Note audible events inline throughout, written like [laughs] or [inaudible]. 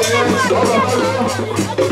下楼，下楼。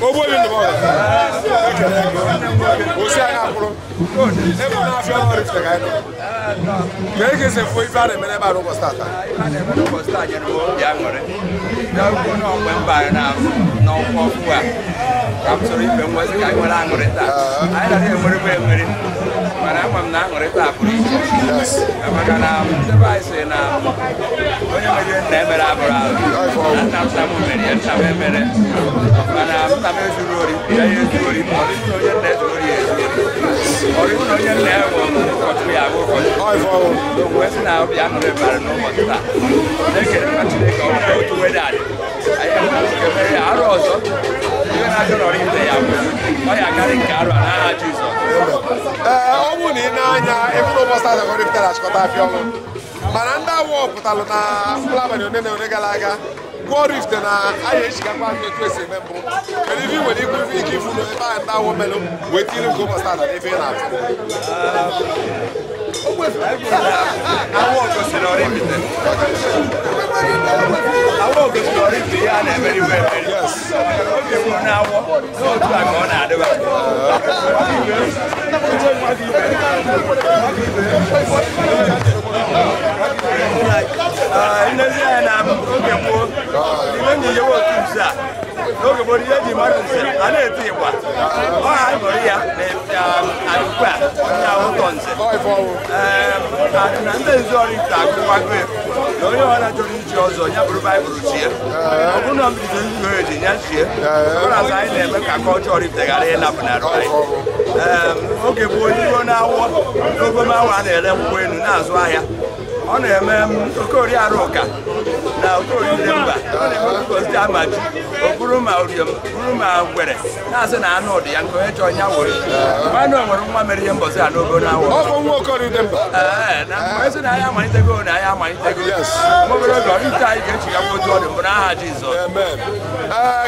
owó yìí nìbọn rẹ o ṣe àyà kúrò e mọ náà fi ọmọ rẹ fẹ ká ẹ lọ kẹ́hìn kì í ṣe fún ifá rẹ mẹ́rẹ́ bá ló kọ́ star ta. ifá rẹ mẹ́rẹ́ kọ́ star jẹ́ ló bí àmọ́ rẹ yàgò náà pẹ́ ń bá rẹ náà náà fún wa kàmùsọ̀rọ̀ ìfẹ́ wọn ká ìwọ́n náà ń ta àyẹ̀dá rẹ mẹ́rẹ́ mẹ́rẹ́ mẹ́rẹ́ kama mnaṅụrịta apụrụ isi maka na ndebe anyị si na onye mere nna emere abụrụ ahụ nna nna m mere ya nna m emere mana nna m ezuru ori ya ya ezuru ori ma ọrụ na onye nna ezuru ori ya ezuru ori ọrụ na onye nna ya nwụrụ ụkọchukwu ya bụ ụkọchukwu mgbe si na ọbịa aṅụrị bara n'ụbọchị taa na-ekere mma Chineke ọ bụla otu wedadị anyị emere ya arụ ọzọ iwe na-achọ ọrụ ya bụ ọ karị nke arụ a n'aha Jizọs ọ bụ na ị na-anya ịfụrụ ụbọchị azụ ọrụ ite achịkọta afịa ọnwụ mana ndị awụ pụtalụ na mkpụrụ one na one gara aga gwụọ ọrụ na aya echigakwa ndị otu esi eme mbụ mere ife nwere ikwu ife ike ifu na ebe ndị awụ melụ wee tiri nke ụbọchị azụ n'ebe ị na-afụ àwọn ògòsìnà rí mi tẹ àwọn ògòsìnà rí mi yá na mẹri wẹ mẹri obi mu na awọ n'otu àgbà ọ na-adị ba. Ndị ndị anyị na-amụ oge gboo, ndị enyi ya otu nza. n'oge gboo ihe e ji mmadụ nze a na-eti ịgba ọha nụrụ ya na-ugbu um, onye nze ehm, na ndị nzu ọrụ ite na onye ọra chọrọ iji ọzọ ya bụrụ baịbụl chie ehm. ọ bụrụ na mbido nzuzo eji ya chie ehm. ụra azụ anyị na-eme ka aka ọchọọ ite na ịnapụnara anyị oge gboo iro na-awọ n'ogoma awa a na-ere mgbe elu na-azụ ahịa ọ na-eme m um, oriarụ ụka na okorire mba ozi ama ji ma oriom bụrụ ma na-asị na anụ dị ya nke onye chọọ ya were nwanne nwere nwa mere ihe mbọzi a n'ogo na awọ ee na anyị amalitego na anyị amalitego obere oge ite anyị ga-echigakwa otu ọ mbụ n'aha Jizọs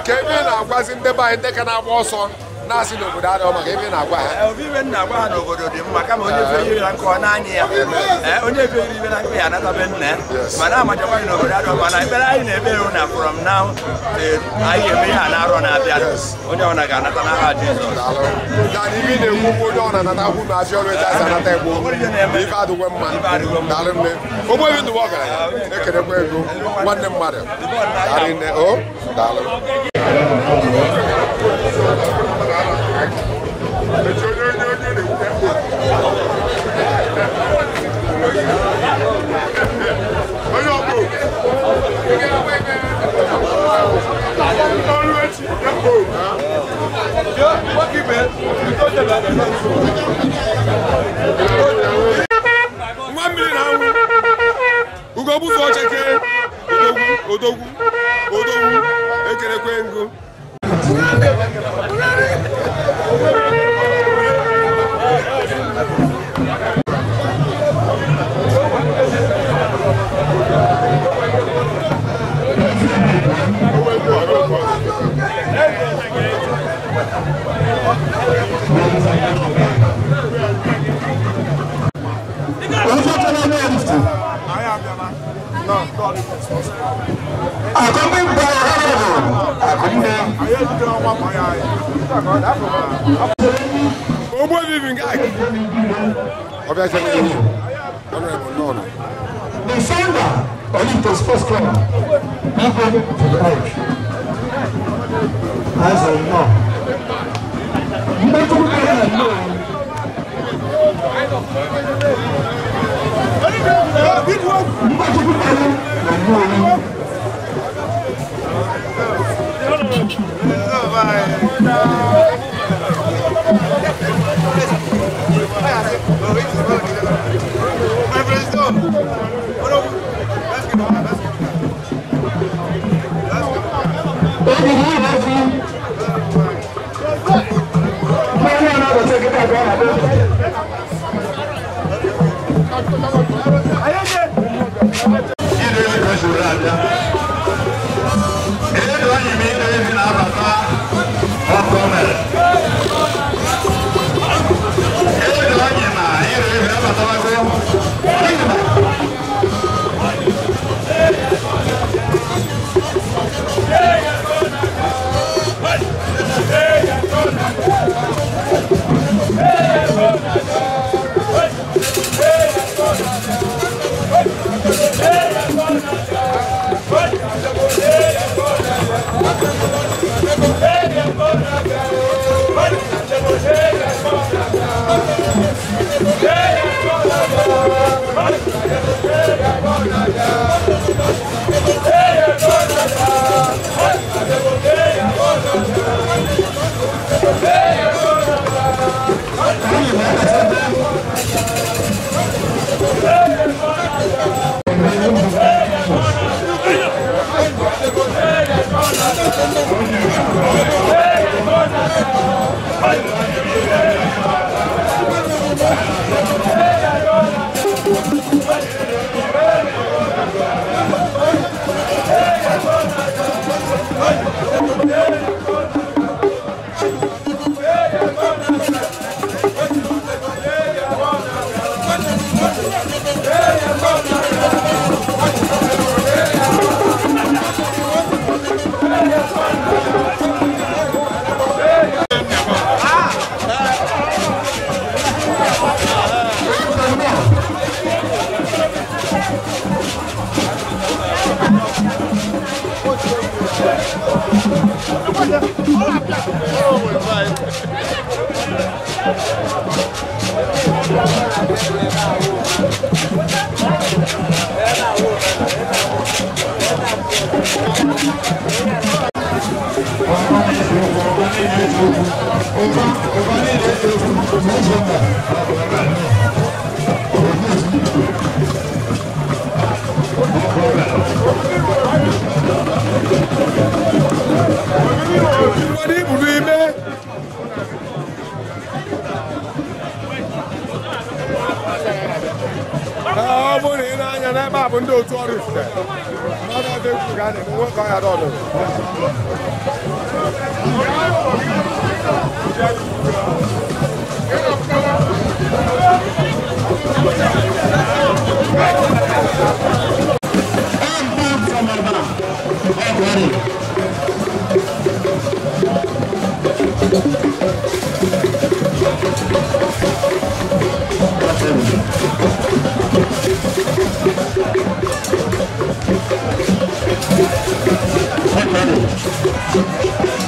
ka ebe ị na-agwazi ndị be anyị ndị ka na-agba ọsọ na-asị na adịghị maka ebe na-agwa ha ebe eh, ibe na-agwa ha n'obodo dị mma kama onye fe iri na nkụ ọ anya ya eh, onye fe iri ibe na nkụ ya be nna ya mana amachakwa na obodo adịghị mma na ekpere anyị na-eme na from now e, anyị eme ihe a na-arọ na-abịa onye anata n'aha Jizọs ibe na onye ọna anata na abịa ọrụ eji anata adịgwe mma nne ndụwa na-ekerekwa nne o odogwu odogwu ekerekwe ngụ accompanied by Ogbo vivi nga. Ọbẹ̀ ṣe ní ìlú. Ọ̀nà ẹ̀bùn náà nù. The founder of Olympus Sports Club dey go to the edge. As I know. Mmetụ nke ya nọ. Mmetụ nke ya nọ. Ayé ṣe. Kí ni ìrẹsì rẹ̀ àdá? Hey, Deus.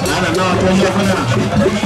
Ana, não, tô indo pra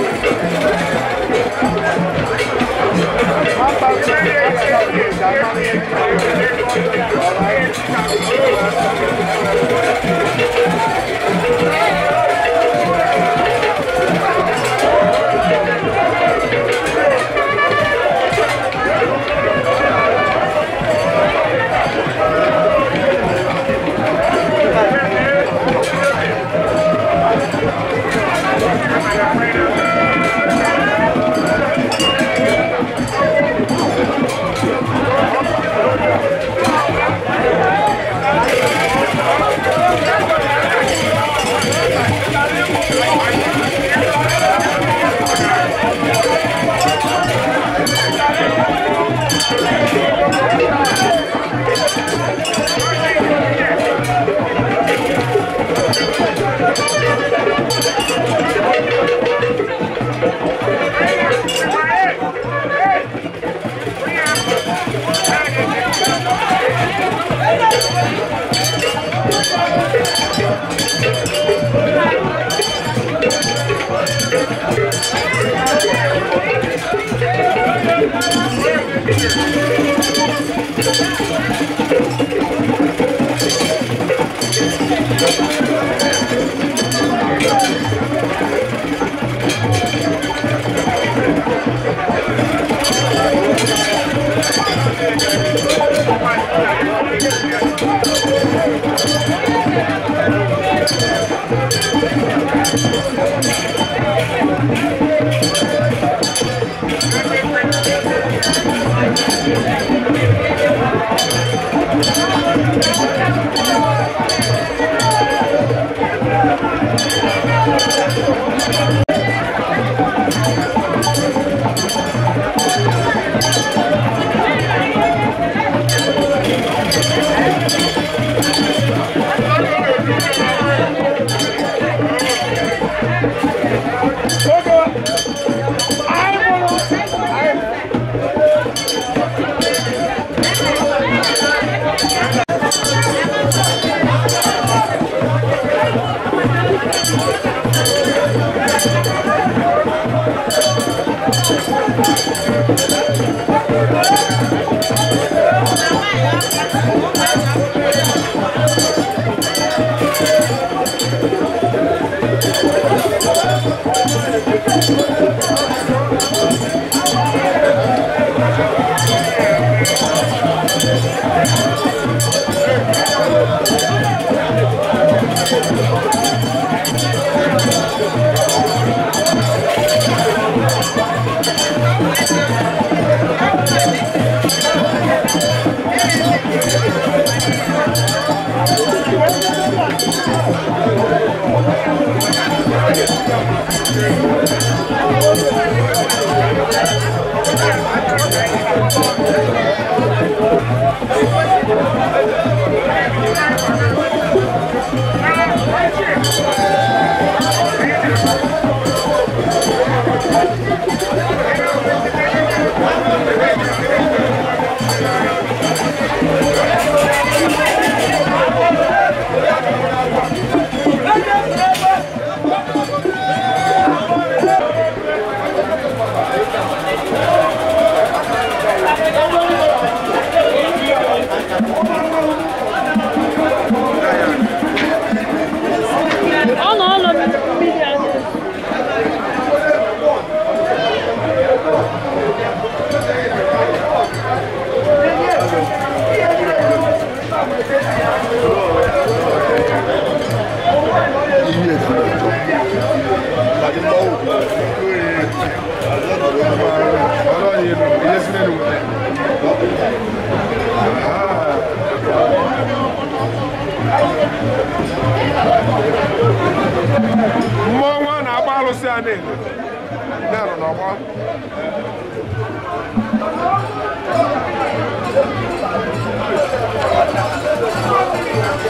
I'm not All right. Thank [laughs] you. iye ìdílé tó láti lọ wò ọlọ́run yìí nù iye sílẹ̀ nù. mmụọ nwa na-agba alụsị a na-ele na-anọ n'ọgba Thank you.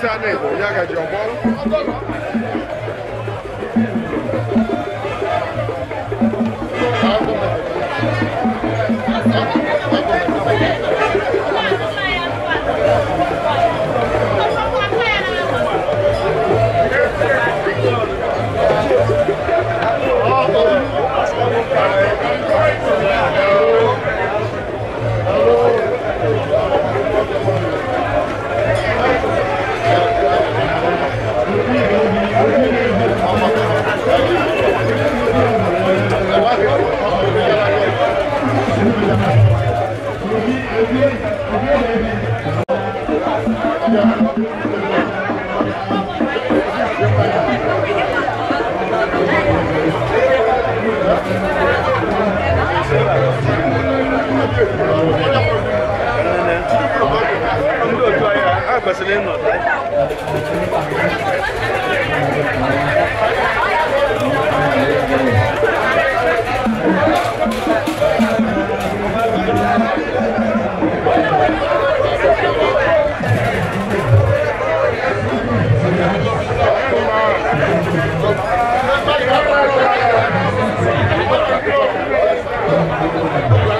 Sane, Y'all got your bottle? ndị otu a n m ị ha kwesịrị ị n Thank you.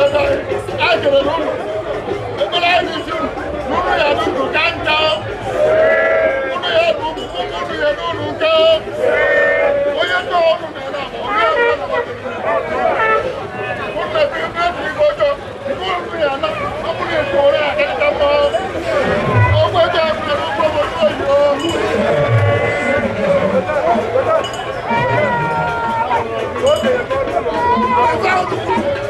lọ́dọ̀ àjèrè lónìí ìpínlẹ̀ ayélujára lónìí yàrá dùn káńtà lónìí yàrá dùn kúkú lónìí yàrá dùn nǹkan oyè tó ọdún náírà mọ̀ ọ́n yóò wọ́n lọ́wọ́ kúndà bí bẹ́ẹ̀ fi gbọ́jọ́ kúndà yàrá ọkùnrin ètò rẹ̀ àkẹ́kẹ́ mọ́ ọgbẹ́ jẹ́ àkùnrin ló gbọ́ mọ́ lóyún. Thank you.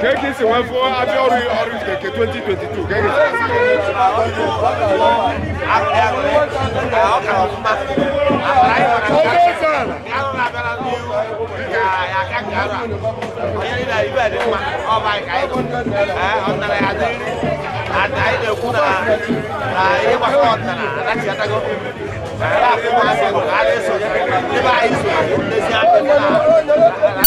kéèkì sì wọ́n fún abíọ́rù ọ̀rùn kèké twenty twenty two kéèkì sì. Thank you.